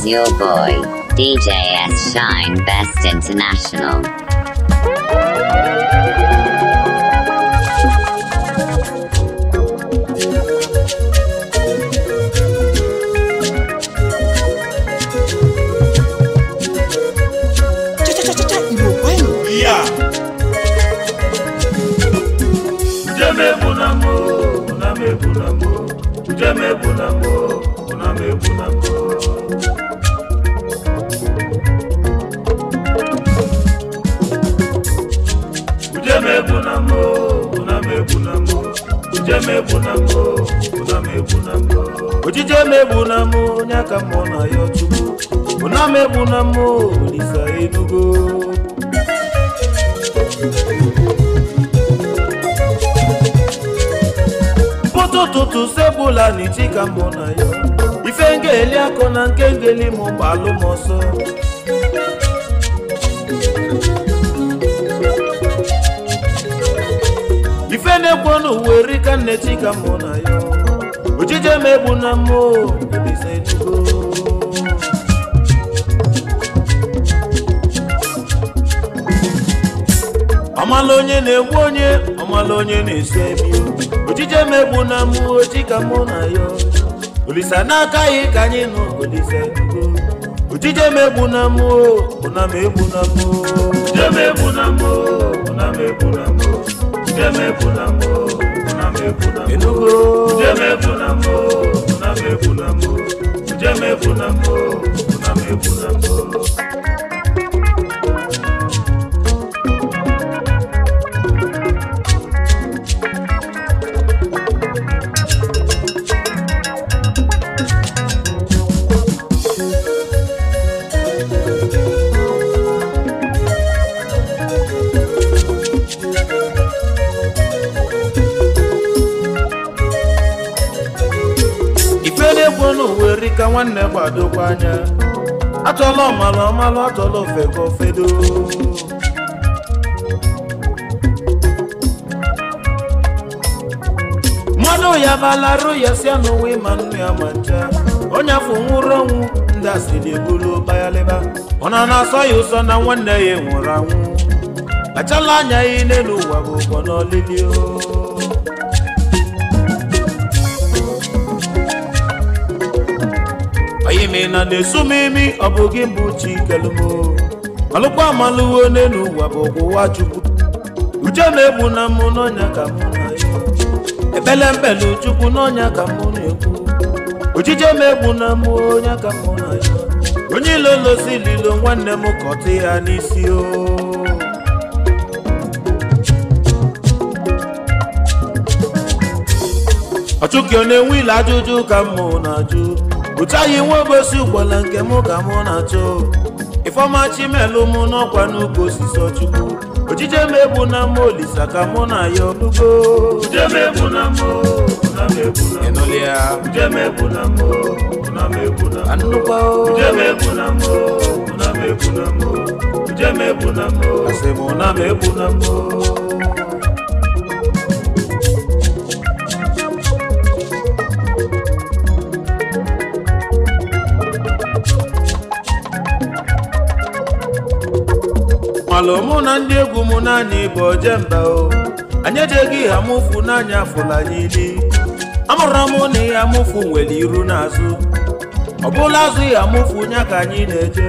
is your boy, DJ S. Shine Best International. Yeah. Jame bunamo, buname bunamo, jame bunamo. ojije omegbu na m onye aka mmụọ na ya ọchụgbu ụna m egbu na m olisa edugo ụtụtụ sebụla na ichi ka mbụ na ya ife ngeli akọ na nke ngeli mụ gbalụ ọsọ na-ekwo n'ụwa erika nnechi ka mụ na ya ojije emegbu na mụ ọmala onye na-egbu onye ọmala onye na-esi ebi ojije emegbu na mụ oji ka mụ na ya olise n'aka ya ka anyị nụ olise ojije emegbu na mụ ụna m egbu na mụ ojije emegbu na mụ ụna m egbu na mụ njem efu na mbụ nwanne gbadokwa anya achọla ọmalụ ọmalụ achọla ofe ka ofedo mmadụ ya balarụ ya sia n'ụwa ịma nnu ya ma ncha onye afọ nwụrụ ọnwụ ndị na ebulu bayalịba ọ na na-asọ ya ụsọ na nwanne ya nwụrụ anwụ kpachala anya ya n'elu ụwa bụ ụbọ n'olili o gịnị na na-esu m imi ọ bụ gị mbụ chikelumo alụkwa amaluwo n'elu ụwa bụ ụwa chukwu uche na-egbu na mụ n'ọnya ka mụ na-egbu ebele mbele chukwu n'ọnya ka mụ na-egbu ojije m egbu na mụ ọnya ka mụ na ya. onye ilo losi lilo nwanne m kọtụ ya n'isi o ọchụkị ọ na-enwe ile ajụjụ ka mụ na-ajụ pụtaghị nwa obosi ụgbọla nke mụ ka mụ na-achọ ifeọma chimelu mụ n'ọkwa n'ukwu osisi Chukwu. ojije m ebu na mma olisa ka mụ na ya ọlụgo ịnụlị ya anụkwa na m ebu na na ndị egwu m naanị bụ ojemba o anyị ejeghị ha mụfụ n'anya afụla anyị ili amụrụ m na ihe amụfụ nwere iru n'azụ ọ bụla azụ ihe amụfụ nya ka anyị na-eje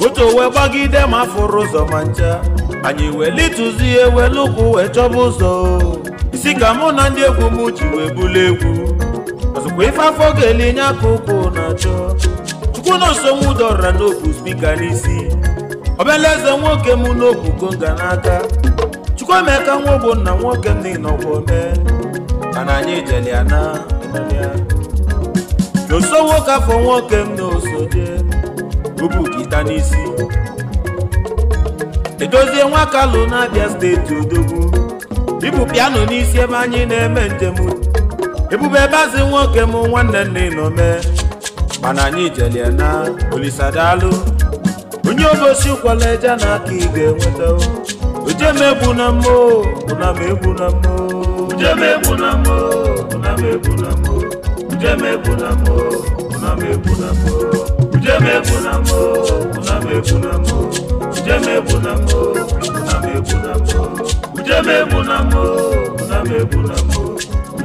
o moto wee gbagide ma fụrụ ụzọ ma ncha anyị wee litụzie ihe ụkwụ wee chọba ụzọ isi ka mụ na ndị egwu m ji wee bulu egwu mgbe ife afọ ga-ele nye aka ụkwụ na-achọ chukwu na osonwu n'obu spika n'isi ọbịala eze nwoke m n'obu ga n'aka chukwu emeka nwa ogbo nna nwoke m n'ịnọkwọ ome mana anyị jele ya na n'oso nwoke afọ nwoke m n'osode bubu gita n'isi edozie nwa kalụ na abịa steeti odogwu ibu piano n'isi ebe anyị na-eme njem ebube bazi nwoke m nwanne nna inome mana anyị jelie na olisadalụ onye obosi kwala eje na aka ị ga-enweta oje m egbu na mmụọ na m egbu na mmụọ oje m egbu na mmụọ na m egbu na mmụọ oje m egbu na mmụọ na m egbu na mmụọ oje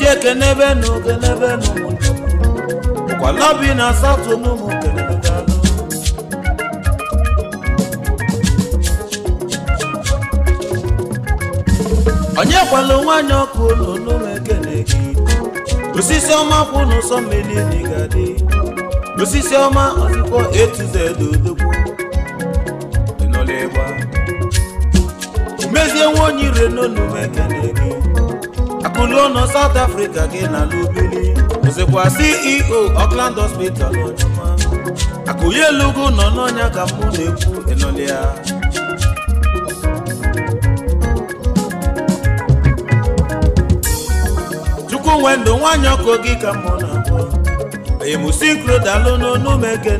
ji ekenebe na okenebe kwalabi na asatọ n'ụmụ kelebe daalụ onye kwalụ nwanyị ọkụ ụlọ n'ụlọ ekene osisi ọma kwụ n'ụsọ mmiri n'igadi osisi ọma ọzụkọ etuzede odogwu ịnọla ịgba mezie nwa onye ire Akụlo nọ South Africa gị na Lubili ozekwa CEO Auckland Hospital ọjụma Akụye Elugu nọ n'ọnya ka mụ na-ekwu ịnọlịa Chukwunwe ndụ nwanyị ọkụ gị ka mụ na-akpọ emusikro dalụ n'onu gị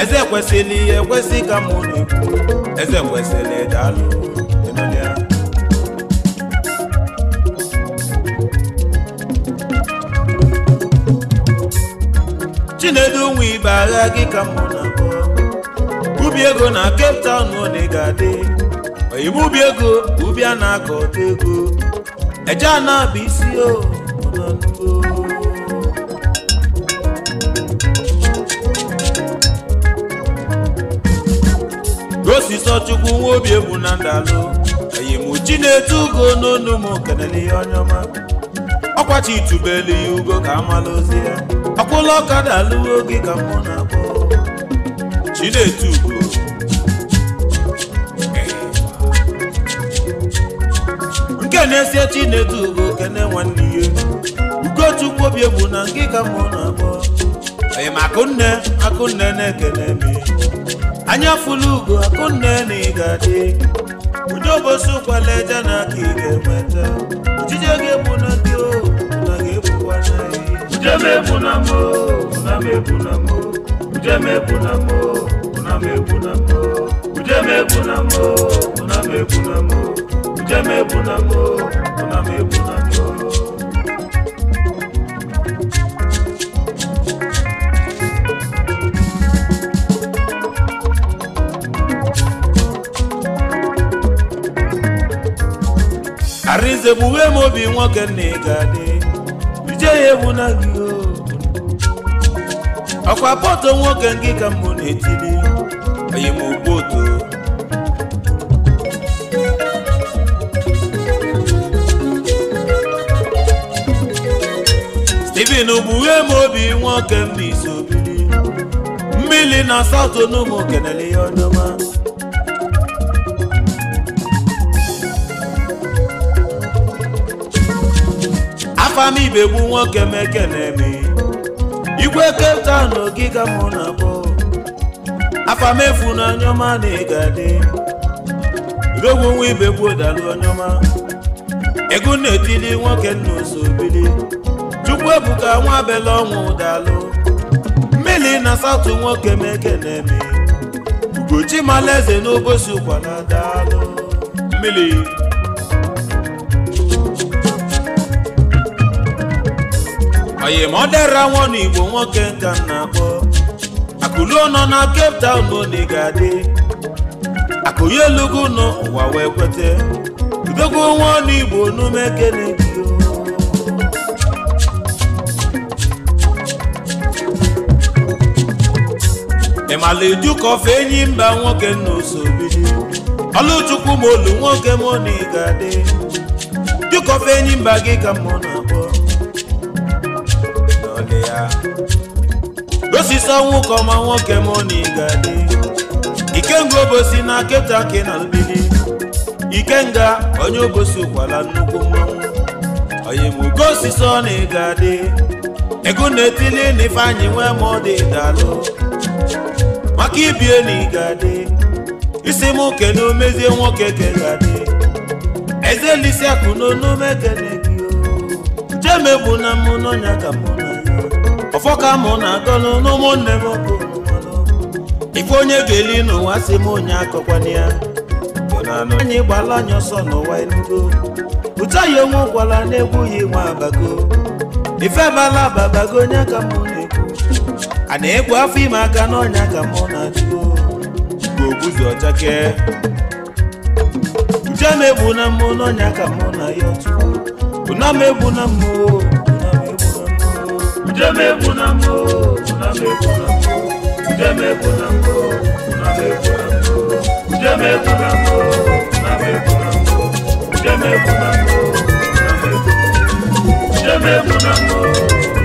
eze kwesịrị ekwesị ka mụ na-ekwu eze kwesịrị dalụ nnedu nwa ibe agha gị ka mụ na ubi ego na Cape Town one ga-adị oyibo ubi ego ubi a na-akọ ọta ego eje ana bụ isi o gosisọ chukwu nwa obi egwu na ndalụ eyimuchi na-etu ugo n'onu m kelele ihe onye ọma ọkwachi itubelu ya ugo ka amala ozi ya akwụla ọkada alụwo gị ka mụ na-akpọ Chinedu nke na-esie Chinedu bụ kene nwanne ihe Ugochukwu obi egbu na nke ka mụ na-akpọ ee ma akụnne akụnne na-ekene me anya fụlụ ugo akụnne na ị ga-adị udobosi ụkwala eje na aka ị ga-enweta ojije gị egbu na ndị ohu Ujemebunamo, unamebunamo, ujemebunamo, unamebunamo, ujemebunamo, unamebunamo, ujemebunamo, unamebunamo. Arinze bughe mobi nwoke na ga jee ya ewu na gị ọkwa pọtụ nwoke ngịka ka mbụ na-etili onye m otu Steven bughe m obi nwoke mbiso biri mmiri na satọ n'ụmụ kenele ya ọdọma Afami m ibegbu nwoke meke na-eme igwe Cape Town ogige mụ na-akpọ afa m efu na anyọma na ịgadị odogwu nwa ibegbu dalụ anyọma ego na-etili nwoke nna osobili chukwu ebuka nwa abela ọnwụ dalụ mmiri na satụ nwoke meke na ugochi malaeze n'obosi ụkwala dalụ mmiri oyimodera nwana igbo nwoke nka m na-akpọ akụluo nọ na Cape Town bodi ga-adị akụye elugo n'ụwa wee kwete udogwu nwa ọnụ igbo n'ume kene ịmala eju ka fe enyi mba nwoke nna osobidi ọlụchukwu ma olu nwoke moni ga-adị fe enyi mba gị ka mmụọ ọsịsa nwoke ọma nwoke moni ga-adị ikenga obosi na keta ke na mgbidi ikenga onye obosi ụkwala nnukwu mmanwụ oyimugo osisi ọ na ịga adị ego na-etili na ifeanyị nwee ma ọ dị dalụ maka ibie na ịga adị isi m na omezie nwoke ka ga-adị ezelisi akụ n'onume kene gị jemebụ na mmụnọnya ka mụ ọfọ ka mụ na agọlụ n'ụmụnne m ife onye ga-eli n'ụwa si m onye akọkwana ya anyị gbala anyị ọsọ n'ụwa enugo ụta ya onwe gwara na-egwu ya nwa abago ife mala ababago onye ka mụ na-ekwu a na-egwu afọ ime aka n'ọnya ka mụ na-achụ ogbuzi ọchake njem egbu na mmụ n'ọnya ka mụ na ya ọtụ na m egbu na mmụọ ndemegbu na mbụ na mbụ ndemegbu na mbụ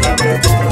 na mbụ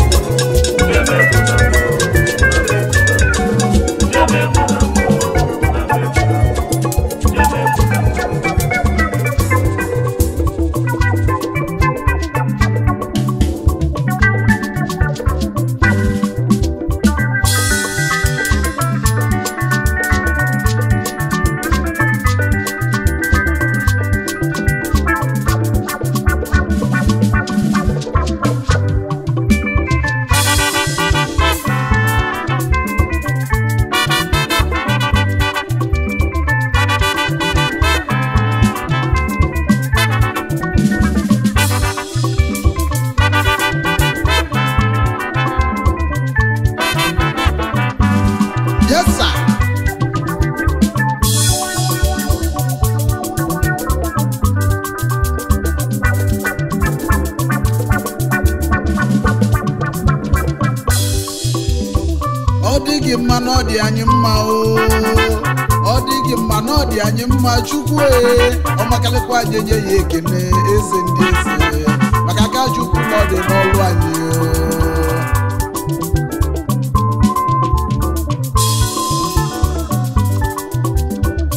ọma chukwu e, ọmakalịkwa anyị nye ya ekene eze ndị eze maka aka chukwu na ọ dị n'ọrụ anyị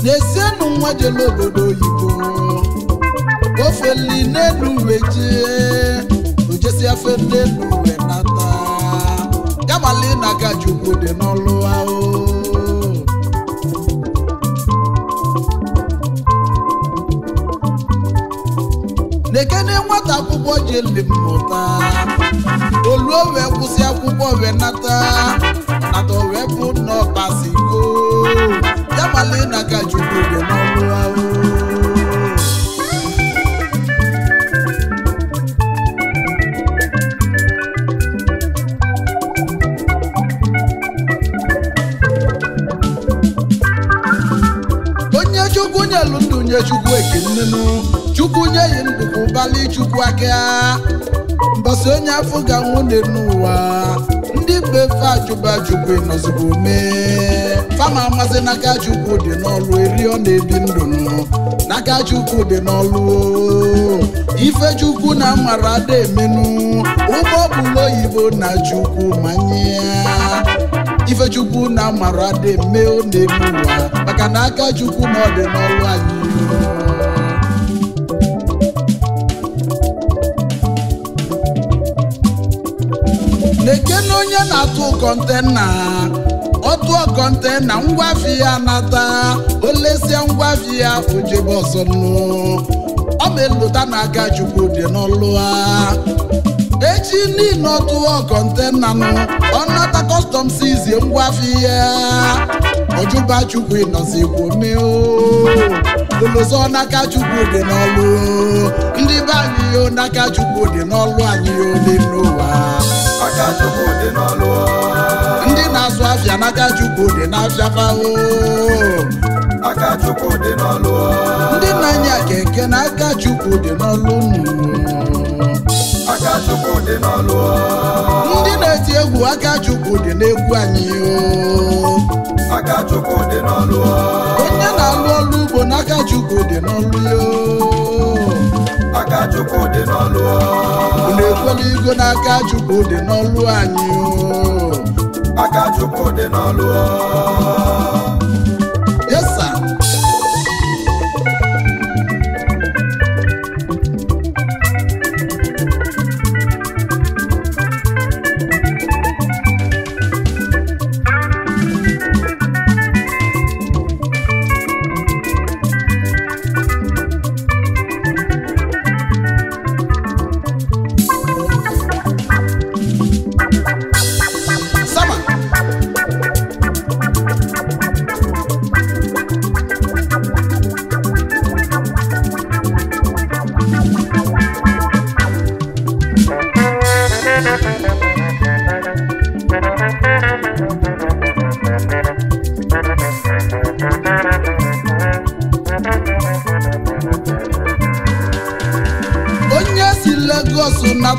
n'esienụ nwa jele obodo oyibo ofeli n'elu uwe jee ojesi afe n'elu uwe nata gamali na aka chukwu dị n'ọrụ ahụ dekene nwata akwụkwọ jele mmụta oluo wee kwụsị akwụkwọ wee nata nata wee bụ n'ọkpasigo ya malina ka chukwu dị n'ọrụ ahụ onye chukwu nyelu ndụ nye chukwu ekenenu chukwu nye yi ndụ ụbali chukwu aka mbọsị onye afọ ga nwụ n'ụwa ndị befe fe ajụba chukwu ịnọzigbo mee fama amasị n'aka chukwu dị n'ọlụ eri ọ na-ebi ndụ n'aka chukwu dị n'ọlụ ife chukwu na mara ada emenu ụgbọ oyibo na chukwu manye ife chukwu na mara ada eme ọ na-eme ụwa maka na aka chukwu na ọ dị n'ọlụ anyị atụ kọntena ọtụ kọntena ngwafi ya nata olesia ngwafi ya ojebe ọ ma elota na-aga chukwu dị n'ọlụ ha echi niile ọtụ kọntena nụ ọnata kọstọm sizie ngwafi ya ojuba chukwu ịnọzi ikwu meo olozo n'aka chukwu dị n'ọlụ ndị be anyị n'aka chukwu dị n'ọlụ anyị ole n'ụwa ndị na-azụ abịa n'aka Chukwu dị n'afịa fao ndị na-anya keke n'aka Chukwu dị n'ọlụ ndị na-eti egwu aka Chukwu dị n'egwu anyị onye na-alụ ọlụ ugbo n'aka Chukwu dị n'ọlụ ya n'aka Chukwu dị na unu ekwela Chukwu dị n'ọlụ anyị aka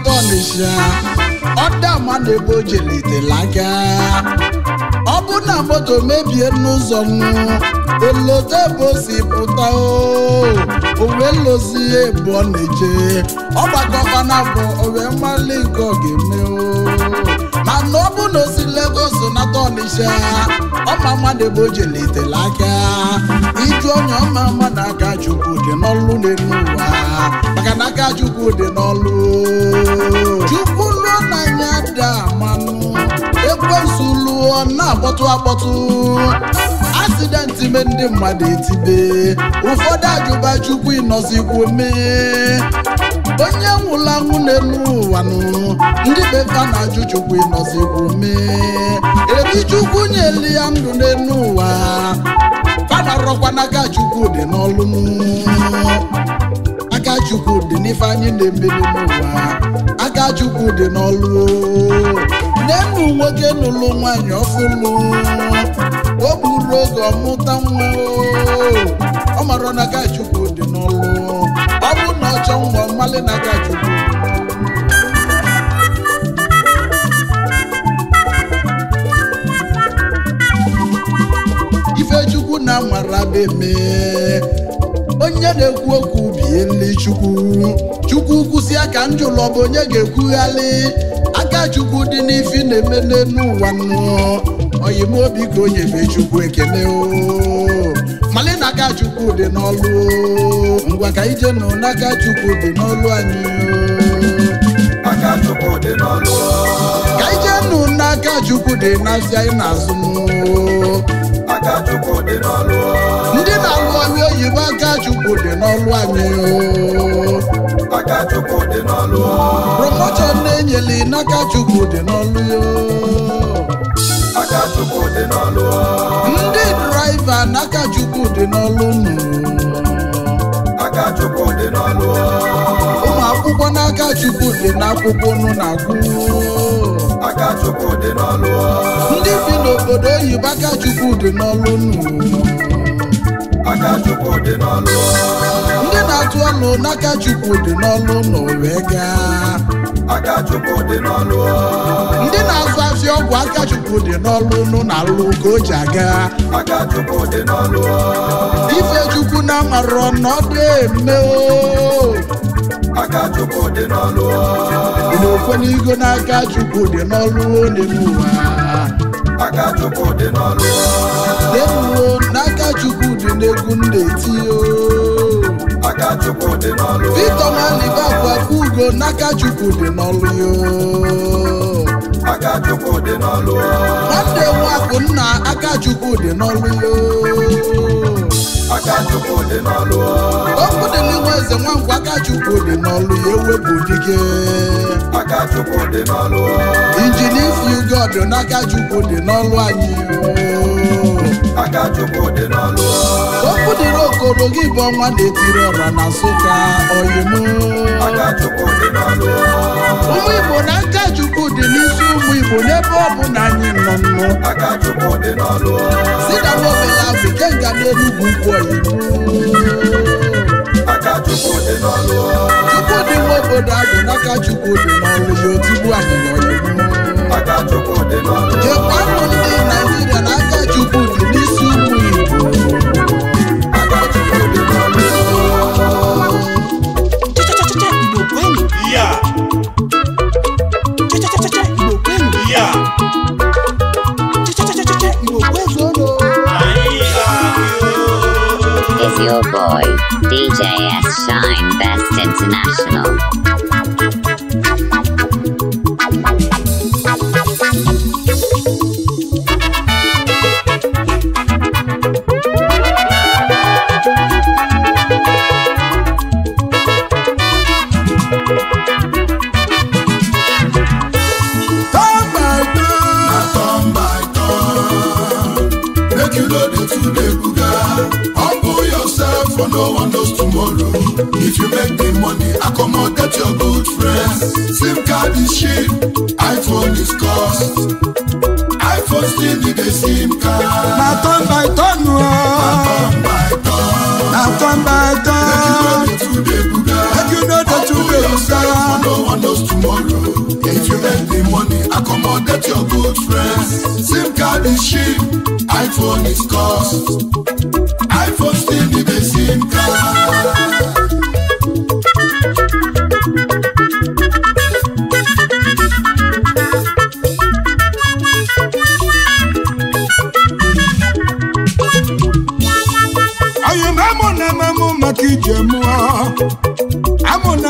n'Ọnịsha ọdama na-ebe o ọ bụ na moto mebie n'ụzọ nnu olodo ebe si pụta owe lozi ebu ọ na-eje ọ bụ owe mmalị nke ọ ga-eme mana ọ bụ na ozi si na ọma mmadụ ebe o jelitela aka ịtụ onye ọma mma na aka chukwu dị n'ọlụ na-enu ụwa maka na aka chukwu dị n'ọlụ chukwu lụọ n'anya dị amanụ ekwensu lụọ na-akpọtụ akpọtụ asidenti me ndị mmadụ etibe ụfọdụ ajụba chukwu ịnọzikwu mee onye nwụla nwunye ụwa nụ ndị befa na ajụjụkwu ịnọzikwu mee erichukwu nyeli ya ndụ n'elu ụwa fada rọkwa n'aka dị n'ọlụ aka agachukwu dị n'ife anyị na-emeri n'ụwa agachukwu dị n'ọlụ nenu nwoke nụlụ nwanyị ọfụlụ o gburu oge ọmụta nwa ọ mara na agachukwu dị n'ọlụ ọ bụ na ọchọ nwa ife chukwu Ifechukwu na amarademe onye na-ekwu okwu bie nri Chukwu Chukwu kwụsị aka njụlọ bụ onye ga-ekwughalị aka Chukwu dị n'ifi na-eme n'elu ụwa nụ oyimobi ka o nyebe Chukwu ekele o n'aka chukwu dị n'ọlụ ngwa ka ije nụ n'aka chukwu dị n'ọlụ anyị aka chukwu dị n'ọlụ ka ije nụ n'aka chukwu dị n'azụ anyị na-azụ aka chukwu dị n'ọlụ ndị na-alụ ọrụ oyibo aka chukwu dị n'ọlụ anyị aka chukwu n'ọlụ promotion na-enyeli n'aka chukwu dị n'ọlụ n'ọlụ ndị draiva n'aka dị n'ọlụ aka chukwu dị n'ọlụ ụmụ akwụkwọ n'aka chukwu dị n'akwụkwọ nụ na-agụ aka chukwu n'ọlụ ndị bi n'obodo oyibo aka chukwu dị n'ọlụ nụ n'ọlụ ndị na-atụ ọnụ n'aka chukwu dị n'ọlụ nụ wee gaa ndị na-azụ azụ ọgwụ akachukwu dị n'ọlụ nụ na alụ ka o ji aga ife chukwu na amarọ n'ọdụ eme akachukwu dị n'ọlụ n'igo na akachukwu dị n'ọlụ n'elu ụwa dị n'ọlụ n'aka dị n'egwu ndị n'aka Chukwu dị n'ọlụ Victor Nwalibakwa ugo n'aka Chukwu dị n'ọlụ yo aka dị n'ọlụ nwanne nwakụ nna aka Chukwu dị n'ọlụ yo dị n'ọlụ dị n'ihu eze nwankwo aka dị n'ọlụ ya ewepụ dike dị n'ọlụ injinia ugo dị n'aka Chukwu dị n'ọlụ anyị aka chukwu dị n'ọlụ okwu dịrị okoro gị bụ ọnwa na-etiri ọra na nsụka oyimu aka chukwu dị n'ọlụ ụmụ igbo na nka chukwu dị n'isi ụmụ igbo n'ebe ọ bụ na anyị nọ nnụ aka chukwu dị n'ọlụ si na nobela bụ kenga n'enugwu ukwu oyimu chukwu dị nwa obodo abụ n'aka chukwu dị n'ọlụ ya otigbu anyị n'ọlụ jekwanụ ndị naijiria n'aka chukwu your boy, DJ S. Shine Best International. is cheap, iPhone is cost. iPhone still the best amụna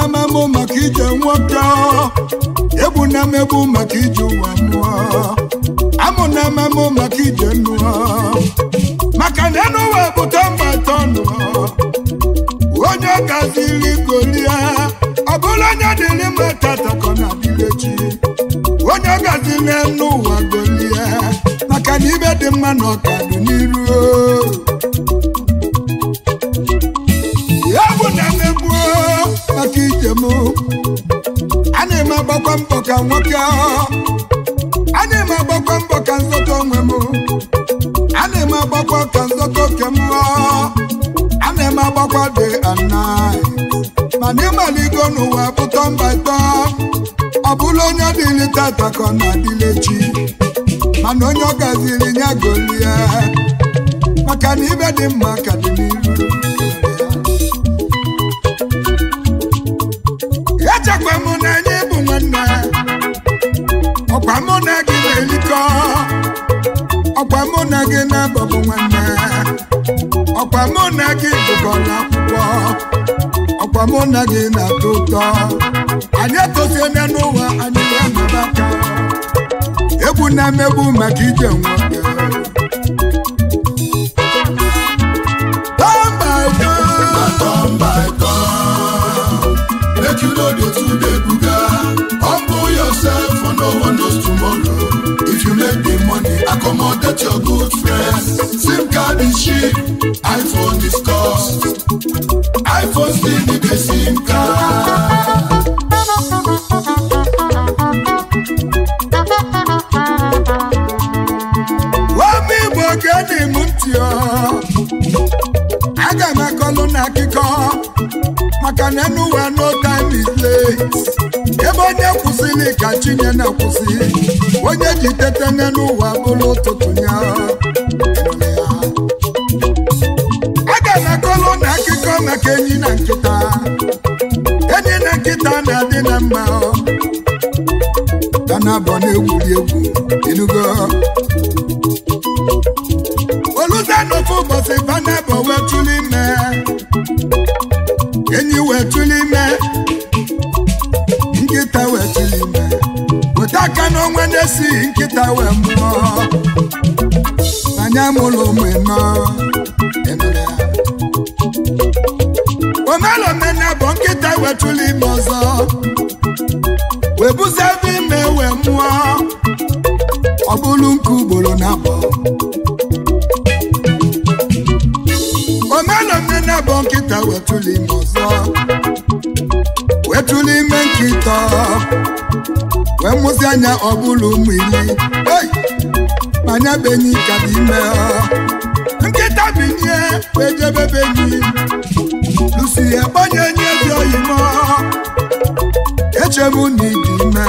amụ maka ije nwoke egbuna m egbu maka ije ụwa mụọ amụ na ememe maka ije nnu maka na enu ụwa bụta mba tọnụ onye gaziri golie ọ bụrụ onye dịrị mma tatakọ na dịrechi onye gaziri enu ụwa golie maka na ibe dị mma na ọkadụ n'iru ya na maka ijem a na-eme agbakwa mbọ ka nwoke ahụ na-agbakwa mbọ ka nzọta onwe m ana eme agbakwa ka nzọta oke a ana eme agbakwa dị ana mana ịmaligo n'ụwa pụta mba ịtọ ọ bụla onye dịrị tata ka ọ na-adịle chi mana onye ọ gaziri ya golie maka na ibe dị mma ka dị n'iru ọkwa mụ na gị na-abọbụ nwanne ọkwa mụ na gị gụgọrọ akwụkwọ ọkwa mụ na gị na-atọ ụtọ anyị etosiela n'ụwa anyị ga-anọba ka egwu na-emegbu maka ije nwoke make you know the two day for oh no one knows tomorrow. If you make the money, accommodate your good friends. SIM card is cheap, iPhone is cost. iPhone still need a SIM card. Wami bogeni mutio, aga na akụkọ maka na anywhere no time is late. ebe onye kwụsịrị ka chinye na-akwụsị onye ji tete n'ụwa bụrụ ụtụtụ ya aga na akọlụ na akịkọ maka enyi na nkịta enyi na nkịta na-adị na mma dana abụọ na-egwuri egwu enugo oluzanofu ụbọchị bana bụ wee tụlụ ime enyi wee tụlụ esi nkịta wee mụọ anya mụlụ mụnọ omelomena bụ nkịta wetụlụ ime ọzọ wee buzebe ime wee mụọ ọ bụrụ nke ugboro na abụọ omelomena bụ nkịta wetụlụ ime ọzọ wetụlụ ime nkịta wee mụsị anya ọ bụrụ ụmụ ili manya benyi ka bụ ime nkịta binye wee jebe benyi lusi ya gbanye nye dị oyimo echemu na ịdị ime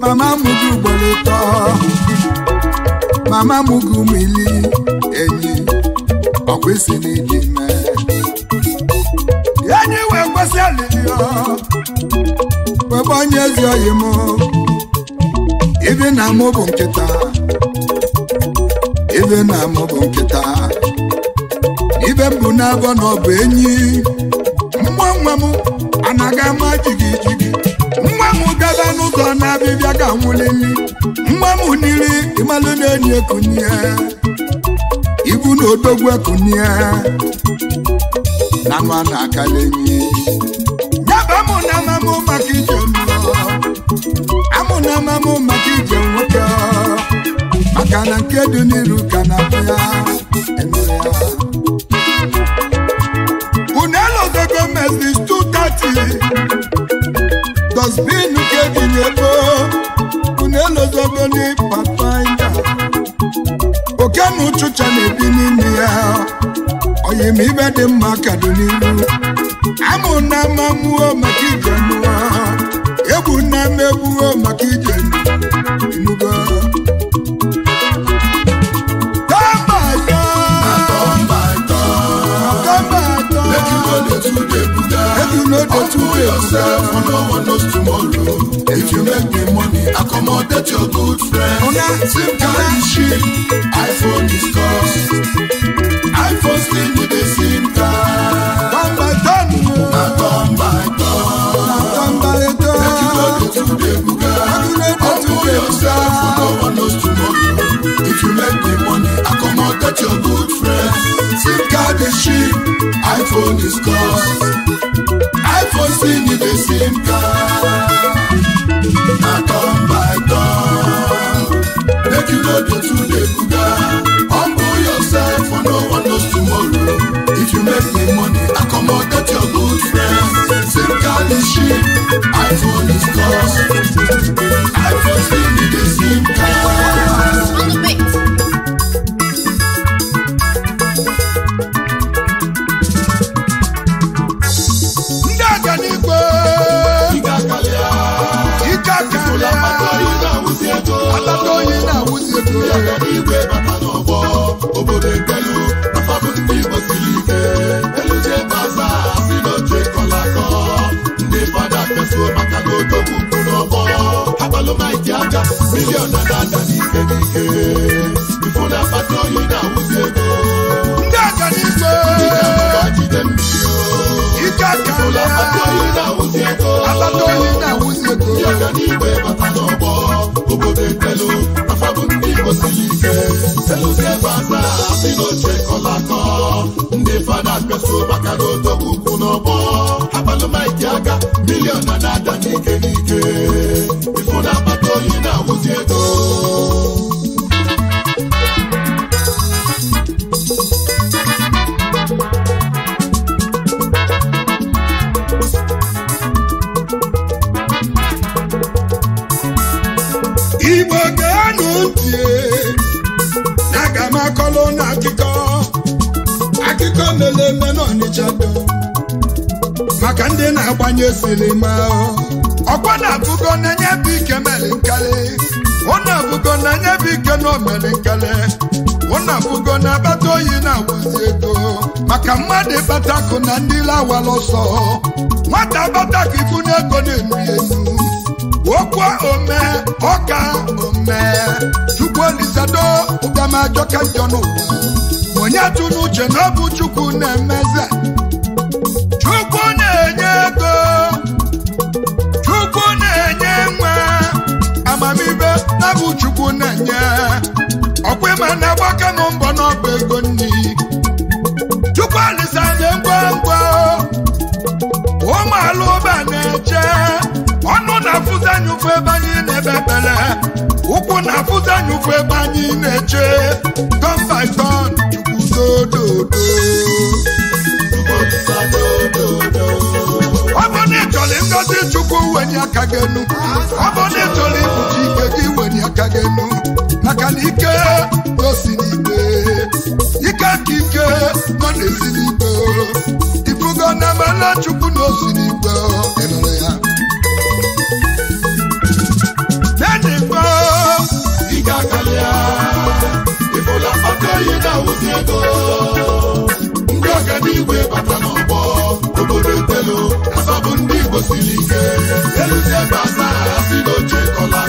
mama m gị ugboro ụtọ mama m gị ụmụ ili enyi ọkwesị na ịdị ime enyi wee kwesị alịlịọ. ifeanyị ezi oyi m ibe na mụ bụ nkịta ibe na mụ bụ nkịta ibe m bụ na-agọ na ọ bụ enyi nwa nwa m anaghị ama jigi jigi nwa m gaba n'ụzọ na-abịbịa ga nwụlili nwa m niri ịmalụ na-enyi ekunye ibu na odogwu ekunye na ma na-akala enyi nyaba m na mama maka na amamụ maka ije nwoke maka na nke dị n'iru ka na-atụ ya unu 230 unu oke na ụchụcha na-ebi n'ime ya oyim ibe dị mma ka dị n'iru amụ na maka ije ọkụ na mmegbuo maka ije imugo Humble yourself for no one knows tomorrow. If you make the money, accommodate your good friends. Same kind of shit, iPhone is cost. iPhone still need SIM card. Come by, come by. Ebuka, ọkùnrin Ebuka, no one knows tomorrow. If you make the money, I come out that your good friend. SIM card is cheap, iPhone is cost. iPhone SIM card. Na turn by turn, make you know the truth. the sheep, I for the scores. I for still be the same cars. Alatoyin na wusi eto. Yàtọ̀ ní ìwé bàbá. ológun dúró abalo abalọ́mọ ìjà àjà mílíọ̀nù dáadáa ní kékeré ìfúnná pàtó yìí náà wù sí ebè. dáadáa ní ìgbé. ìjàmbá bá jíde mi o. ìjà kàlẹ́. ìfúnná pàtó yìí náà wù sí ebè. abató yìí náà wù sí ebè. yàgà ní ìwé bàtà lọ bọ́ òbòdè tẹ́lu afábùn ní ìbòsí yìí kẹ́. sẹ́lúsẹ́ bá gbà sínú ṣe kọ́lá kan. ndé fada gbèsò n'iti aga milion na na-ada n'ike n'ike maka ndị na-agbanye sinima ọkwa na-abụgo n'enye bụ ike mere nkele ọ na-abụgo n'enye bụ ike na omere nkele ọ na-abụgo na abata oyi na-agwazi ego maka mmadụ ịbatakụ na ndị lawara ọsọ nwata abatakụ ibu ego na-enu enu okwu ome ọka ome chukwu olisado ụgamajọka njọ n'ụwa onye tụ na ọ bụ chukwu na-emeze amamibe na chukwu na-enye ọkwa ịma na agbaka na mbọ n'ọba ego nri chukwu alịsa nye ngwa ngwa ụmụala ụba na-eche ọnụ na-afụzi anyị ebe anyị na-ebe ebele ụkwụ na-afụzi ebe anyị na-eche by ọ bụ na ịchọrọ ngozi chukwu wenye aka gị enu ọ na ịchọrọ ikpuchi ike gị wenye aka na ike n'igwe ike nke ike nọ n'ezi ifugo na emela chukwu n'osi osi ịnụrụ ya bata n'ọgbọ ọ bụ ndị Igbo siri ike eluzi ebe a naghị asị n'oche kọla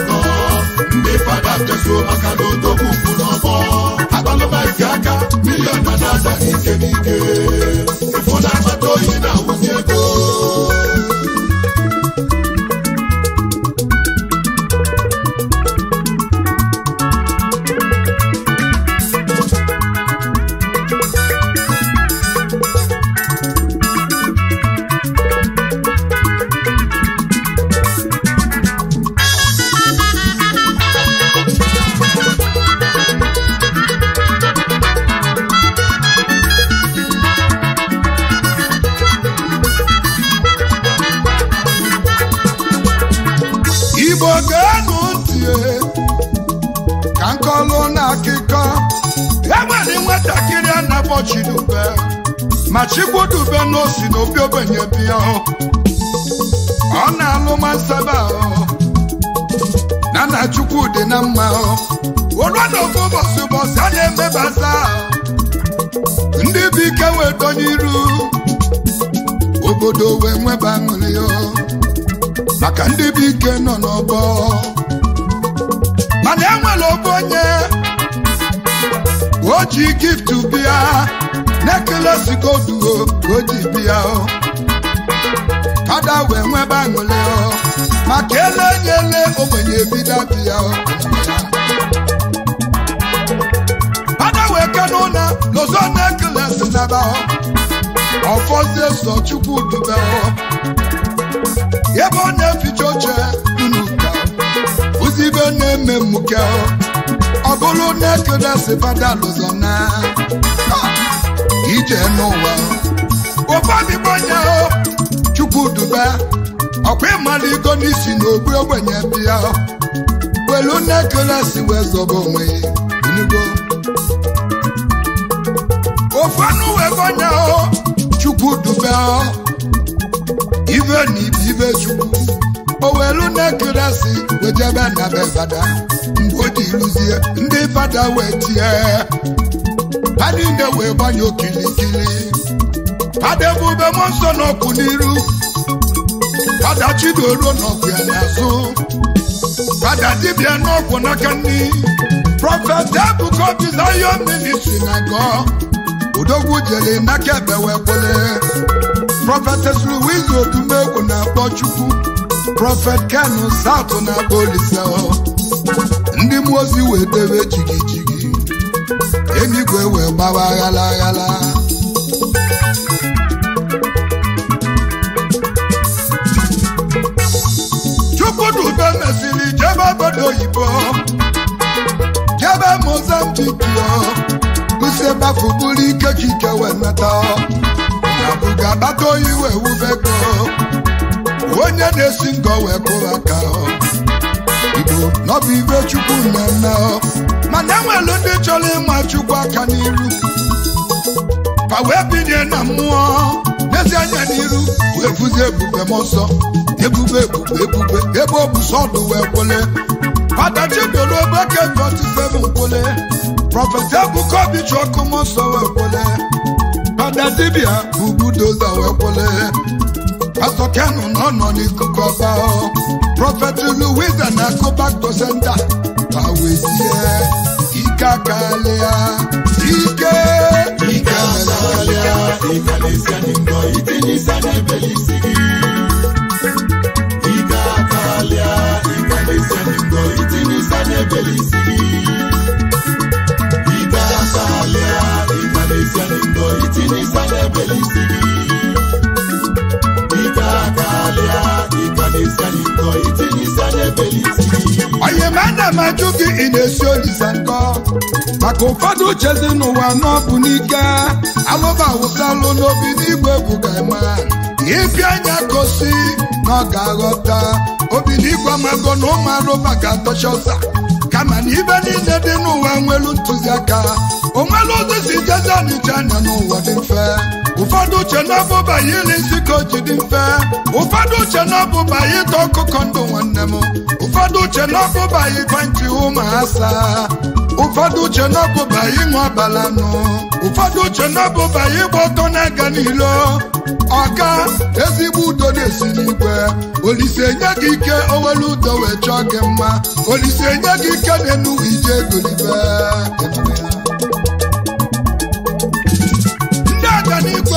ndị fada tezuo maka na odogwu kwụ n'ọgbọ abalụba nke aka milion na na-adaghị ike n'ike na-emebata ndị bụ ike weto iru obodo wee nweba aṅụrị maka ndị bụ ike nọ n'ọgbọ mana enwere obe onye o ji giftu bịa na-ekele sikoduo ka o ji bịa wee nweba aṅụrị maka ele nyele ogbenye bido obodo na-ekelesi n'ebe ọfọzie sọ chukwu dube ebe ọ na-eficha oche nnuka uzibe na-eme mmuke ọ bụrụ na-ekelesi badalụzọna ije n'ụwa ụfọdụbonya chukwu dube ọkwa ịmaligo n'isi na ogbenye bịa welu na wee zọba onwe ya ofenuwegonya chukwudube ibe na ibe ibe chukwu owelu na-ekelesi wejebe na bevada mgbe o ji rụzie ndị fada wee tie ha niile wee gbanye okilikili fada ebube m nsọ n'ọkụ n'iru fada chidoruo n'ọkụ ya n'azụ fada dibịa n'ọgwụ n'aka nri prọfet ebuka obizayọ militri na gọọ odogwu jele n'aka ebe wee kwele prọfetes na-akpọ Chukwu prọfet Kenu South na Olise ndị mmụọ ozi wee dewe jigijigi eluigwe wee gbawa aghala. Chukwu chukwudube mesiri jebe obodo oyibo jebe Mozambique si ebafu bụrụ ike ka ike wee nata abụ ga-akpata oyi wee wubego onye na-esi ngọ wee kụrụ aka igbo n'ọbụ ibe chukwu mmemme mana enwelu ndị chọrọ ịma chukwu aka n'iru ka wee binye na mmụọ n'ezi anya n'iru wee bụzi ebube m ọsọ ebube ebube ebube ebe ọ bụ sọdụ wee kwele fada chibiola obeke jọtisem nkwele Prophet prọfesị ebuka obi chọkụm nsọ wee kwele dọda dibịa bụ budoza wee kwele pastọ kenu nọ nọ n'ikuku ọba prọfeti luwiza na akụbakto senta ma wezie ike akalịa ike ike akalịa ikalisia n'indo itinisa n'ebelisi gị ike akalịa ikalisia n'indo itinisa n'ebelisi Sigi. na onye mana ana gị ị na-esi olise nkọ maka ụfọdụ uchezi n'ụwa n'ọbụ n'ike alụba wụsalụ n'obi n'igwe egwu ga-eme anya gosi na ọ ga-aghọta obi n'igwe amago na ụmụ arụba ga-atọcha ọsa ama na niile dị n'ụwa nwere ntụziaka o ụzọ si jezi ọdịcha anya n'ụwa dị mfe ụfọdụ uche n'ọbụba ya ili ka o ji dị mfe ụfọdụ uche n'ọbụba ya ịta ọkụkọ ndụ nwanne m ụfọdụ uche n'ọbụba ya ịgba nchi ụmụ ụfọdụ uche n'ọbụba ya ịṅụ abalanụ ụfọdụ uche n'ọbụba ya ịgba ọtọ na-aga n'ilo ọka ezigbo udo na-esi n'igwe olise nye gị ike owelu udo wee chọọ gị mma olise nye gị ike na-enu ije egolibe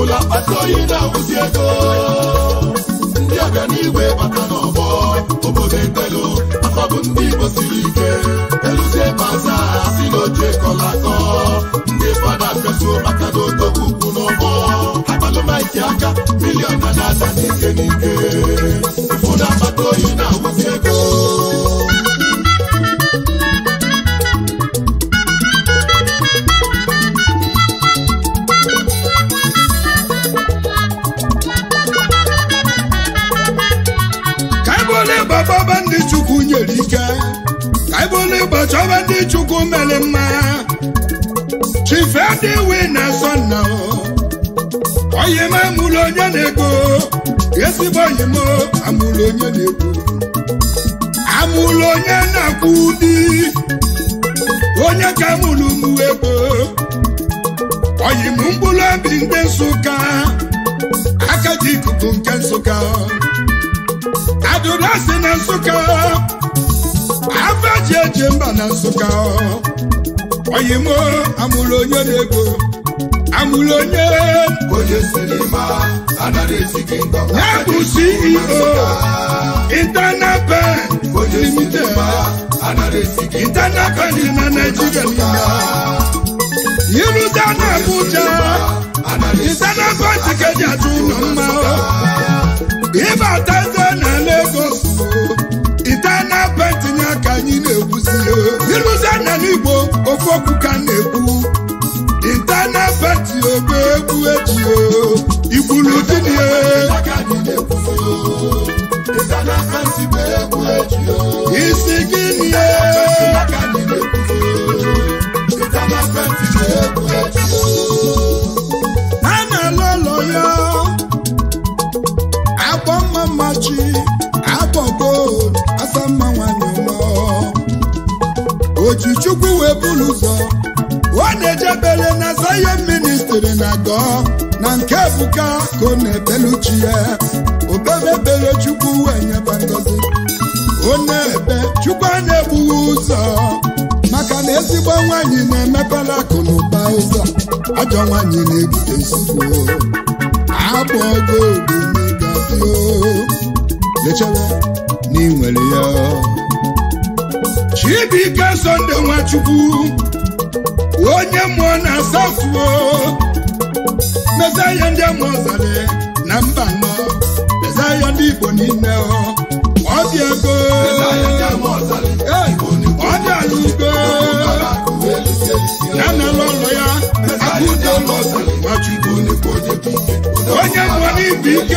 ụlọ akpata oyi na-awụzi ego ndị ọbịa n'igwe bata n'ọgbọ obodo etelu afọbụ ndị Igbo siri ike eluzie baza si n'oche kọla akọ ndị fada fesu maka na odogwu ukwu n'ọgbọ akpalụmaiti aka miliọn na na-ada n'ike n'ike ụlọ akpata oyi na-awụzi ego gere ike ka ị bụrụ igbo chọba ndị chukwu mere mma chife adịwi na asọ nna onye m amụrụ onye na-egbo ezigbo onye m amụrụ onye na-egbo amụrụ onye na-akwụ ụdị onye ka mụrụ mụ egbo oyi m mkpụrụ obi ndị nsụka aka dị ikuku nke nsụka adụrụ asị na nsụka afa ji eje mba na nsụka oyimo amụrụ onye na-ego amụrụ onye ya bụ CEO internal bank na Nigeria niile iruta na Abuja internal bank ka ji atụ ụlọ mma ịbata eze na ego. na-ekwuzie ịrụzi anya n'igbo ofu okwu ka na-ekwu intana ogbe egwu eji igburu di isi gịnị a na-ala ụlọ ya akpọ mma mmachi ebulu ụzọ ọ na-ejebere na Zion ministri na gọọ na nke Ebuka ka ọ na uchi ya obebebere chukwu wee nyeba ngozi ọ na-ebe chukwu a na-egbughi ụzọ maka na ezigbo nwaanyị na-emepela akụ na ụba ụzọ ajọ nwaanyị na-ebute nsogbu o lechere na ị ya Chidike Sunday Nwachukwu onye mmụọ na asafuo mezaya ndị amụzale na mba nọ mezaya ndị Igbo niile ọ dị ego ọ dị ala ugo ya na ụlọ ya akụdo Nwachukwu onye mmụọ n'ibu ike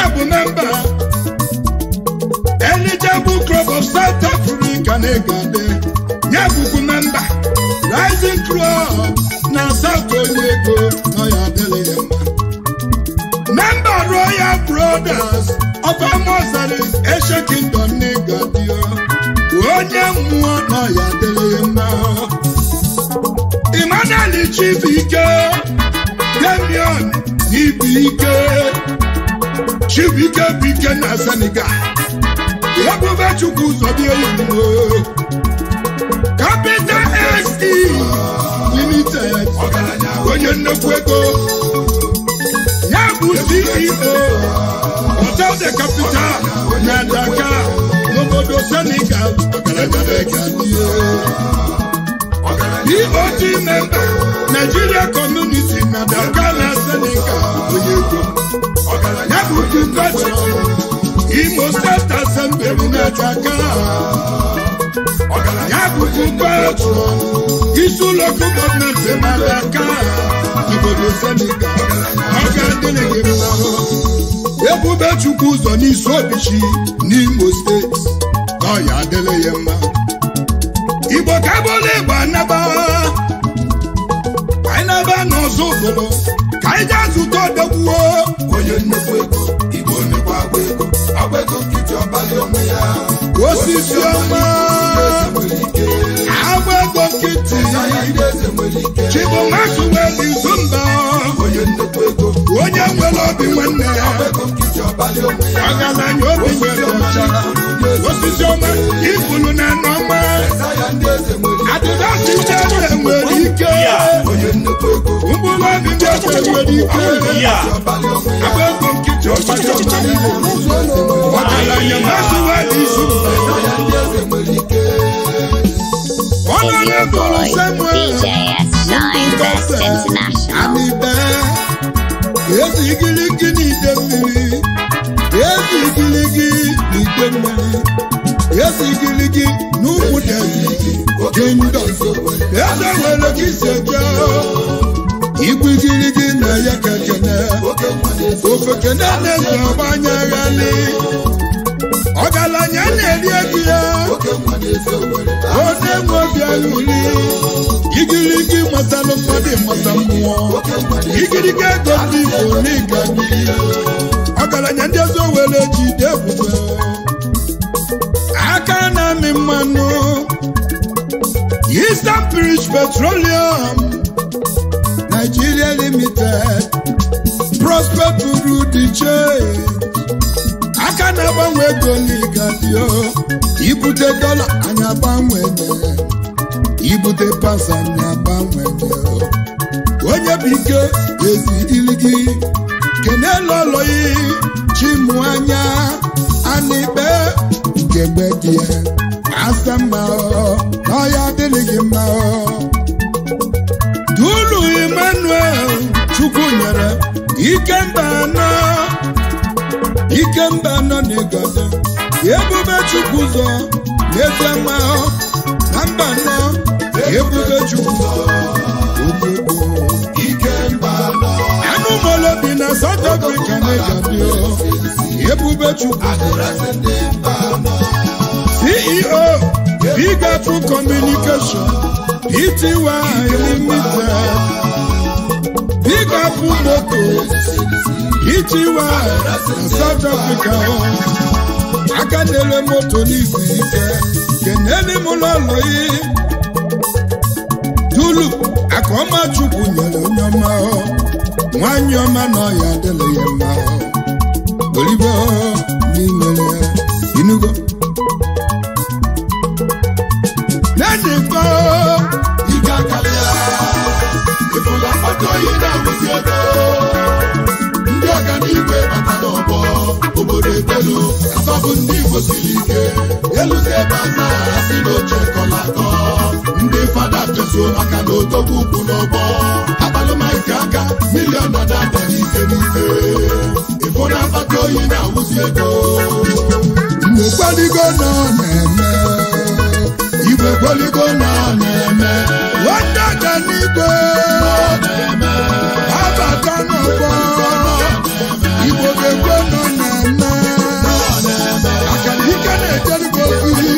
ya bụ nọmba elijebu club of South Africa na-egade ya bụbu nọmba rising crop na South ego nọ ya adịghị ya mma memba Royal Brothers of Amozari Asian Kingdom na-egadio onye mmụọ nọ ya mma Emmanuel Chibike Damion Ibike chibuike bike ike na senegal ebube chukwu ụzọ ya oyibo capital se limited onye nnukwu ego ya bụ ceo hotel de capital na daka n'obodo senegal EOT Memba Naijiria community na daka na senegal onye ego ọgaranya bụ Chimfachi Imo State Assembly bụ na-eji aka ọgaranya bụ Chimfachi isi ụlọ ọkụ gọọmenti mara aka obodo Senegal ọga dịrị gị mma ebube Ebubechukwu ụzọ n'isi obichi n'Imo steeti na ọya adịrị ya mma igbo ka bụla igbo anaba anyị naba n'ọzọ ụzọrọ ka anyị gaa zụta odogwu onye nnukwu ego igbo mekwa agba ego Agwa ego nkịtị ọbalị onwe ya osisi ọma agba ego nkịtị chibụmasụ nwere izumba onye ego. Onye nwere obi nwanne ya ọgaranya obi nwere ọcha osisi ọma na nụ ọma adịdasi nchebe nwere ike mkpụrụ obi nchebe nwere ike agba ego nkịtị ọgaranya mmasịwa n'izu Big boy, DJ S9, Best International. eji igiligi n'ide mmiri eji igiligi n'ide mmiri eji igiligi n'ụkwụ dị gị ndọ eze were gị seja igwe gị na ya ka na ofe kene na-eze anya ọgaranya na-eri ego ya onye nwe obi aghụli igirigi matalụ mmadụ mata mmụọ igirigi ego ndị igbo n'ịga ọgaranya ndị ọzọ were jide ebube aka na-amị mmanụ Eastern bridge Petroleum Nigeria Limited prospect uru di che. aka na-agbanwe ego n'igafio ibute dọla anyị agbanwere ibute pasa anyị agbanwere onye bụ ike ezi iligi kenelu ọlọyi chimụ anya anịkpe nke gbe dị ya asa mma ọya adịghị gị mma dulu Emmanuel Chukwu nyere ndị anọ Ike mba nọ n'ịgọzi ebube chukwu ụzọ n'ezie mma na mba nọ ebube chukwu ụzọ anụ molo bi na South Africa na-egabi ebube chukwu CEO Big Apple Communication Pty e Limited ịgọpụ moto ichiwa na South Africa aka moto n'isi ike keneli m lọlọyi dulu akọma chukwu nyere onye ọma nwanyị ọma na ọya adịla ya mma olibo n'imere inugo akọghịdaụziebe ndị ọganiigwe bata n'ọbọ obodo ndị igbo ike eluzi ebe si n'oche kọla atọ ndị fada chezuo maka na odogwu ugwu n'ọbọ akpalụmaike aka milion oligbo na-eme nwata ganigbo abata n'ụgbọ igbo ga-ekwe nọ na-eme akanike na-ejerigo ozi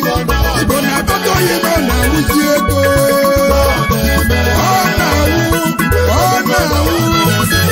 igbo na-akpọta oyi nọ na-awụzi ego ọ na-awụ ọ na-awụ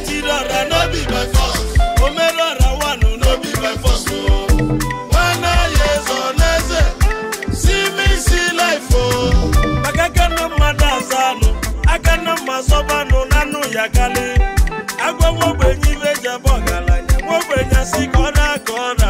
change it ọ̀rọ̀ no be by force omero ọ̀rọ̀ wà no be by force o. wana yezo neze see me see life o. makaka no mmadụ aza anụ aka na mma zọba agwa nwogbenye ibe jebe ọgaranya nwogbenye si ka ọ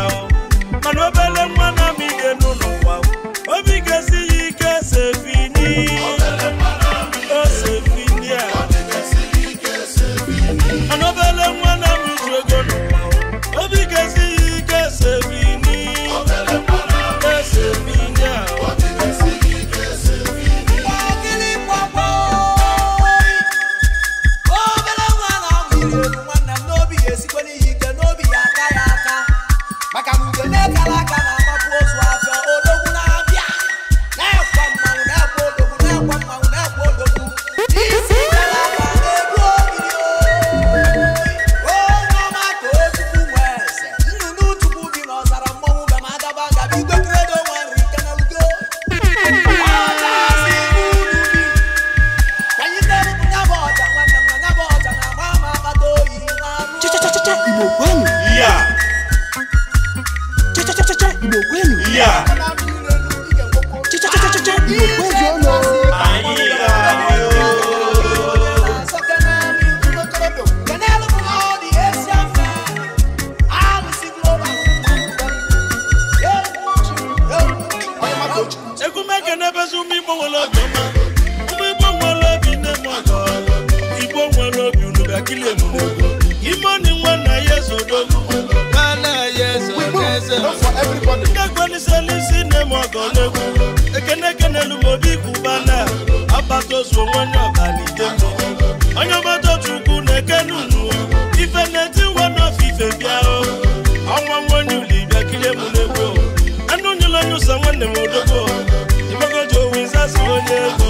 yeah.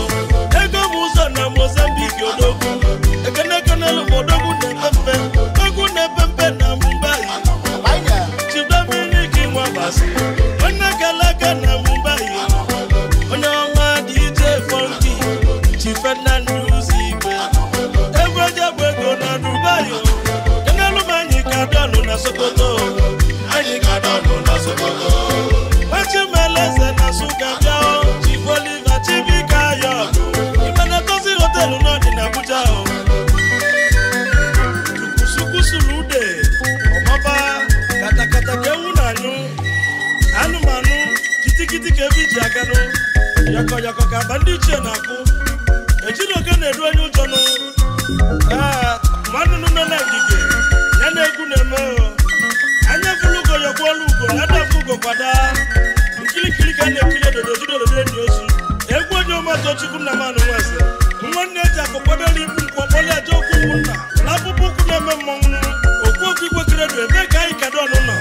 ndị iche na-akụ ejiri oge na edu onye ụjọ nụ ee mmanụ nọ na ngige ya na-egwu na-eme anya fụlụ ugo yọkwuolu ugo na adafụ ugo kwada nkirikiri ka a na-ekiri edodo jidododo enyi ozu egwu onye ọmatochukwu e na manụ nweze nwanne eji akụ kwadoro ibu nkwu ọkpọli aja okwu ụmụnna na akpụkpọ ụkwụ na-eme mmọnwụ okwu okwu igwe kiredu ebee ka anyị kadọnụ nọ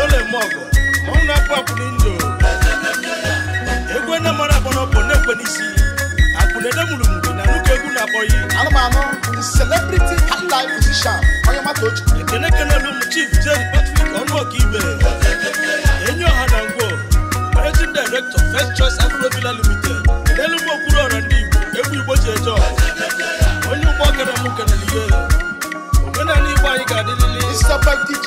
n'olemọgụ mmanwụ na-akpụ akpụli ndụ egwu na mara bụ na n'isi na egwu na-akpọghị anụmanụ celebrity highlife musician onye mata ochi ekene ọha na ngwo managing director first choice afrovila limited ọra ndị igbo egwu igbo ji onye ụgbọ kere m kenelihe omenala anyị ga Mr. Bike DJ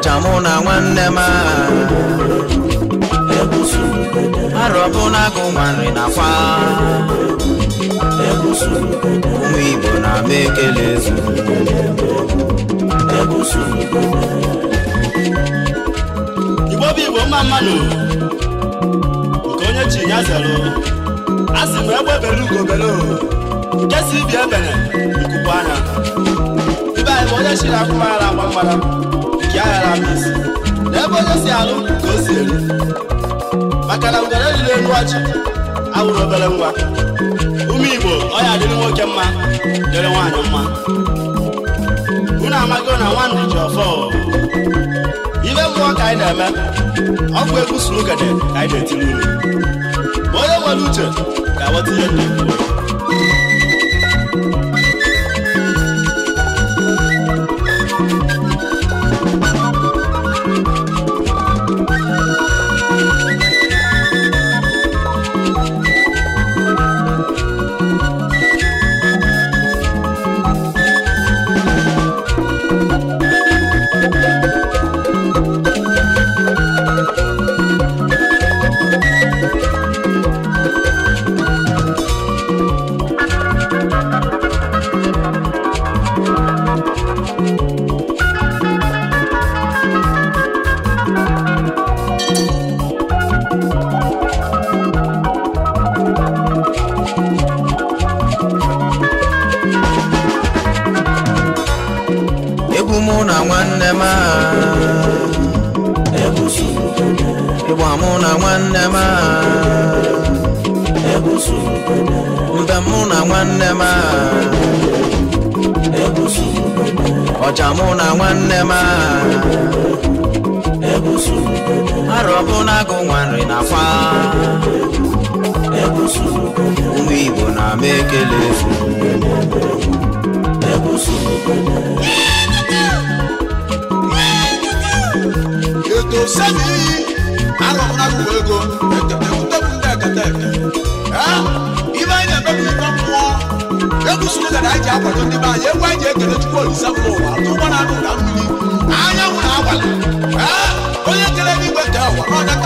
ọnịcha mụ na nwanne m arọbụ na agụ nwa nri nakwa ụmụ Igbo na-ama ekele ezu Igbo bụ Igbo mma mmanụ nke onye chi ya zero a sị m egbe bere ugobere nke si ibi ebere ikuku anya ibe anyị bụ onye chi na akwụkwọ ara agba mgbara ya ghara n'ebe onye si alụ ka o si eri maka na ngwere riri elu ọchị awụrụ obere nwa ume igbo ọ ya adịrị nwoke mma dịrị nwaanyị mma unu amago na nwandị ji ọfọ ibe mmụọ ka anyị na-eme ọgwụ egwu suru ugede ka anyị na-etiri unu ma onye nwere uche ga-aghọta ihe ndị igbo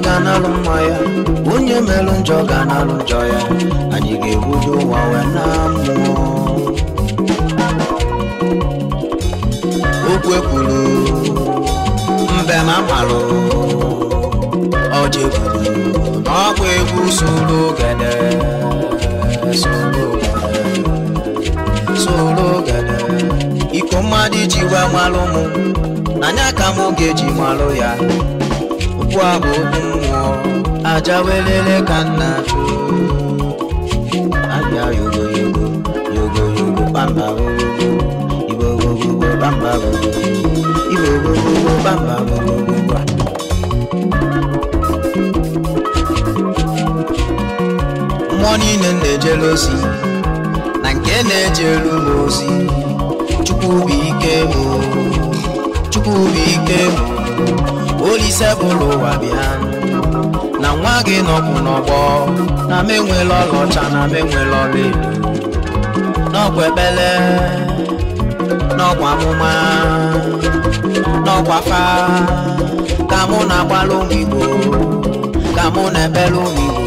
ga-analụ mma ya onye melụ njọ ga-analụ njọ ya anyị ga-egbudo ụwa wee na mmụọ okwu ekwuru mbe na malụ ọjị ekwuru ọgwụ egwu soro ogede soro ogede iko mmadụ iji wee malụ mụ n'anya ka m ga-eji malụ ya igwe abụ obi aja welele bamba gogogo igbo bamba bamba gogogo mmụọ niile na-ejere ozi na nke na-ejere m ozi chukwu olise bụrụ ụwa bịa na nwa gị nọkwụ n'ọgbọ na m enwela ọlaọcha na m enwela ọla edo n'ọkwa ebele n'ọkwa amụma n'ọkwa fa ka mụ na-agbala ụmụ igbo ka mụ na ekpele ụmụ igbo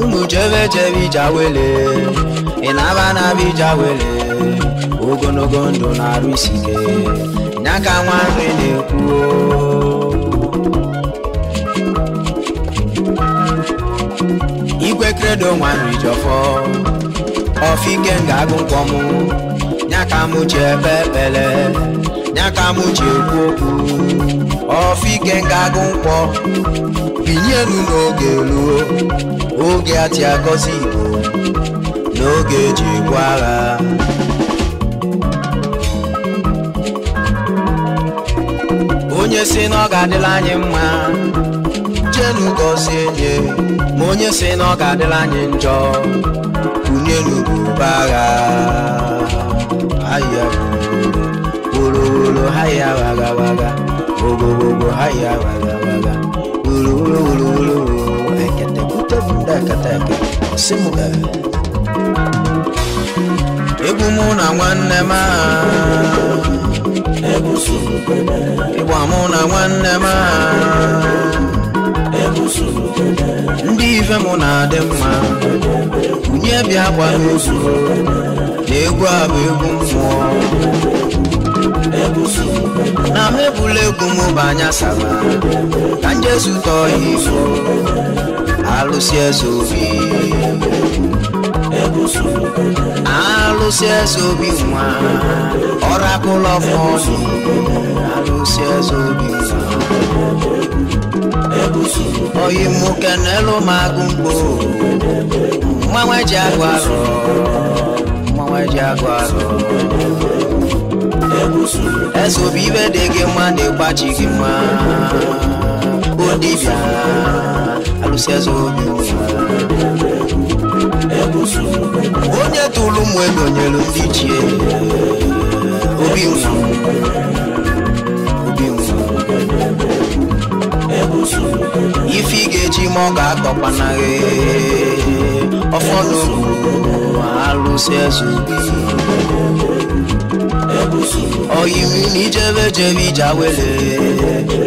unu jebe jebe ije wele ị na-aba na-aba ogologo ndụ na-arụ isi ike nya ka nwa nri na-ekwuo obodo nwanrijọfọ ọfike ga-agụ nkwọmụ nyaka m ji ebe ekpele nyaka m ji ekwu okwu ọfike ga-agụ nkwọ binyelu n'oge luo oge ati agọzi igbo n'oge eji egbu agha onye si na ọ ga-adịla anyị mma jenu gọzie anyị ma onye si na ọ ga-adịla anyị njọ kunye n'ubube agha ahịa woro haya wagagwaga ogogbogo haya wagagwaga wuruwuruwuruwuru eketekutebudeketeke ọsịmụga egwu mụ na nwanne m ịgba mụ na nwanne ma. ndị ife mụ na-adị mma nwunye bịa gba n'ozu na egwu a bụ egwu mmụọ na m ebula egwu m banya saba ka njezu tọọ ifo, izu alụsị eze obi alụsị eze obi nwa ọrakụlọ fọdụ alụsị eze obi nwa oyi nwoke n'elu m agụ mgbo mmanwe ji agụ arụ mmanwe ji agụ arụ eze obi ibe dị gị mma na-egbachi gị mma bụ dibịa alụsị eze obi onye tụrụ ụmụ ego nyere ndị iche, obi nwụ busu ife ị ga-eji ma ọ ga-akọkwana gị ọfọdụ alụsị eze na n'ijebe jebe ija wele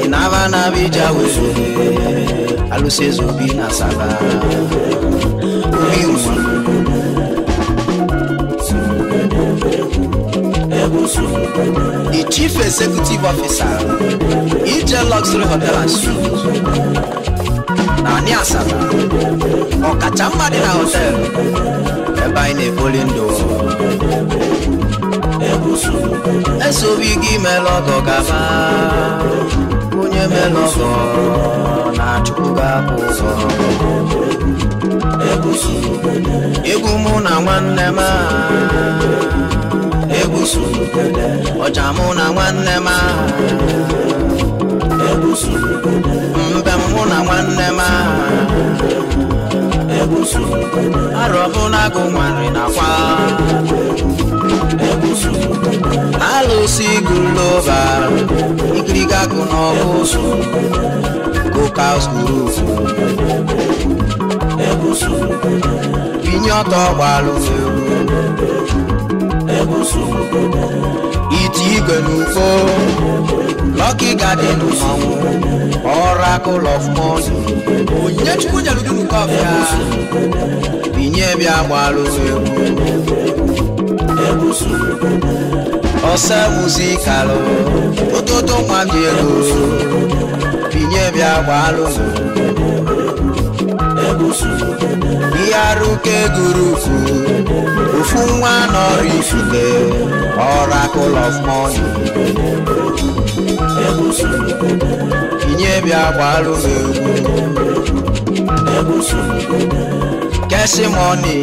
ịnaba naba ija alụsị eze obi na saba obi the chief executive officer ije luxury hotel na anyị asaba ọkacha mma dị na hotel ebe anyị na-ebuli ndụ ese obi gị mela ọgọ gaba onye mela na-achụpụ gị apụ ụzọ egwu mụ na nwanne m egbusu ọja mụ na nwanne m aha egbusu mbe mụ na nwanne m aha egbusu arọ bụ na agụ nwarị nakwa egbusu alụsị gụlọba ikiriga gụ n'ọgụ kokas group inye ọtọ gbalụ egwu iti igwe na lọki gadin ọnwụ ọrakụl of mọnụ Onye chukwu nyere gị nke ọbịa binye bịa gbalụ egwu ọsọ muzikalụ ụtụtụ nwa dị ego binye bịa gbalụ ihe arụ ka eguru ufu ofu nwa nọrọ ifule oracle of money kinye bịa gbalụ m egwu kesi moni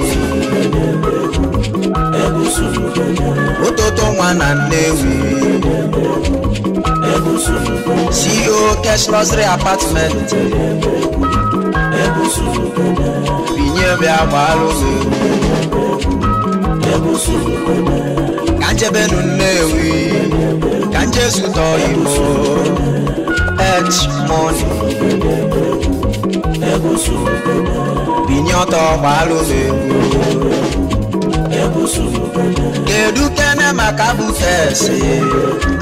ụtụtụ nwa na nnewi CEO Cash Luxury Apartment bịa gbara ka nchebenu Nnewi ka nchezutọ Imo et moni binye ọtọ gbara ụzọ kedu kene maka abụtes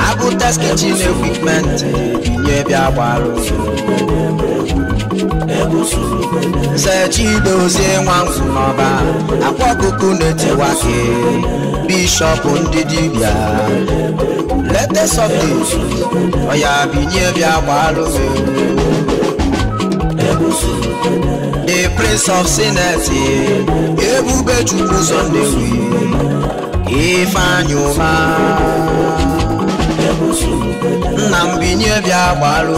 abụtes kichin ekwipment binye bịa gbara ụzọ Chidozie nwanzu n'ọba akwa ọkụkụ na-etewa ke bishọp ndị dibịa lete sọde oh, ọya binye bịa gbalụzi the prince of sineti ebube chukwu zọ ndewi ifeanyị ụma nna m binye bịa gbaru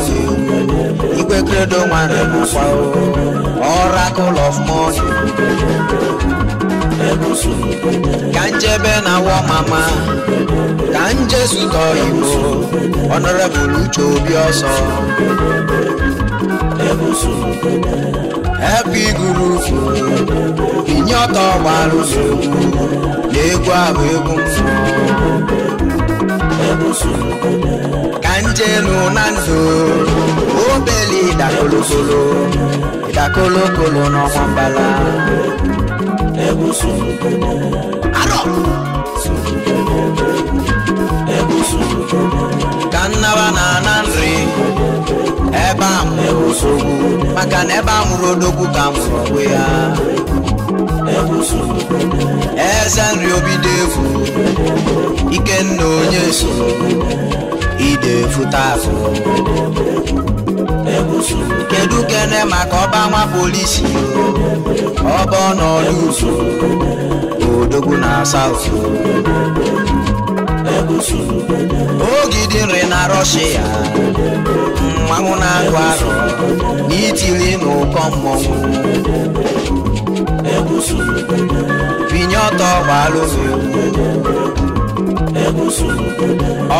igwe kredo nwanyị nakwa oracle of money ka njebe na wọ mama ka njezuta oyibo honorable uche obi ọsọ epi gurupu binye ọtọ gbaru na egwu ahụ egwu m ka njenu na nzu obele ịdakolokolo ịdakolokolo n'ọnwa mbala ka nnaba na-ana nri ebe a mụrụ odogwu maka na ebe a mụrụ odogwu ka mụrụ onwe ya eze nri obido efu ikenna onye so ide futa afụ kedu kene maka ọba nwa polisi ọba ọnọdụ uzu odogwu na saut ogidi nri na rọshia mmanwụ na-agụ arụ n'itili na ụkọ mmọnwụ binye ọtọ gbalụzi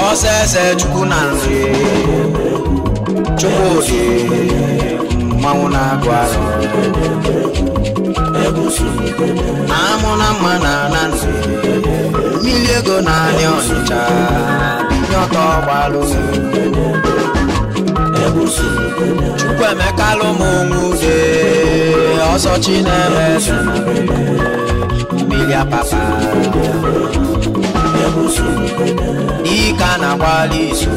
ọsese chukwu na nri chukwudi mmanwụ na-agụ arụ amụ na mma na na nri mmiri ego na-anị ọnịcha binye ọtọ gbalụzi Chukwuemeka lụmụ nwude ọsọ Chineke mmiri apapa ike a na agbalị izu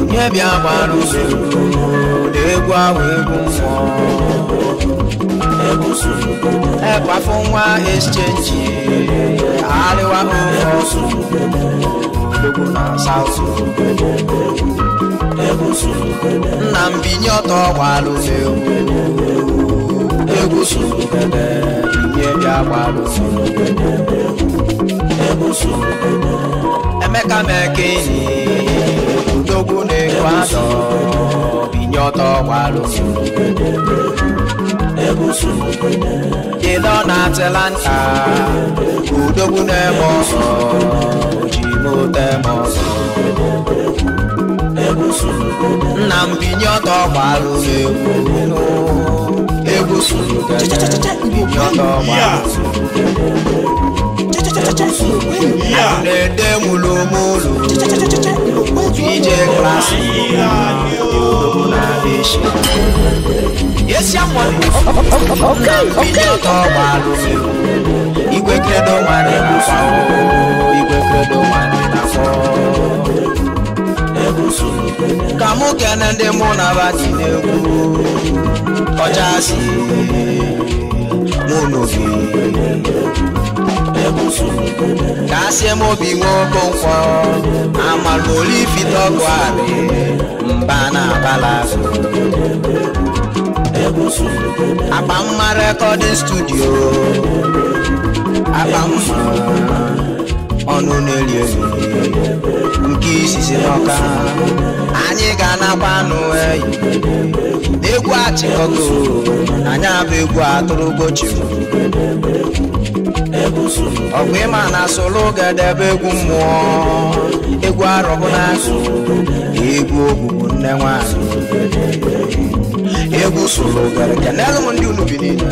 onye bịa gbara na egwu ahụ egwu mmụọ ekwafu nwa exchange arịwa ofe ọsụ egwu na South nna m binye ọtọ gbalụzi egwu binye bịa gbalụzi emeka meke enyi udogwu na-ekwu anọ binye ọtọ gbalụzi kedu ọ na-atịla nta udogwu na-eme ọsọ ji mote eme ọsọ egwusu nna m binye ọtọ gbarụ egwu egwusu binye ọtọ gbarụ na-ede mulumulu ije klasị na-eshi esi akwa nna m binye ọtọ gbarụ igwe kredo nwere na afọ igwe kredo nwere na afọ ka mụ kene ndị mụ na bati na-ekwu ọchasị mụ n'obi ka asị m obi nwe okonkwọ amalụ olifitọgụ arị mba na abala akpa mma rekọdịn studio akpa mma ọnụ na-eli elu nke isizi n'ọka anyị ga-anakwa anụ eyi egwu achịkọgo anyị abụ egwu atụrụ gochiru ọgụ ịma na solo gadebe egwu mmụọ egwu arọbụna egwu ogbugbu nne nwanyị egwu solo gara kenelụ m ndị unu bi niile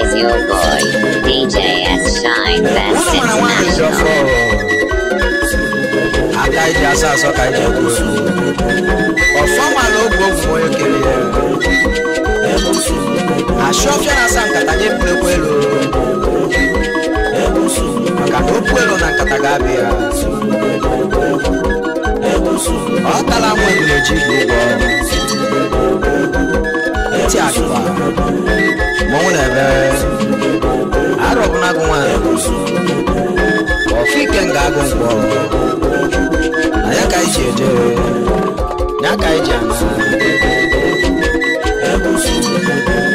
is your boy, DJ S. Shine Best International. Adájọ́ aṣá sọ́ka jẹ́ gbòòrò. Ọ̀fọ́mà ló gbógun oyè kiri ẹ̀rọ. Aṣọ́fíà náà sá nkàtà nye mpulekwa elu. Maka na okwu elu na nkata ga-abịa. Ọ tala nwa eji bụ ụgwọ. Ntị agụba. mọnwụ na-eme arụ agụ nwaanyị ọfike nga agụ mkpọ na ya ka anyị ji eje ya ka anyị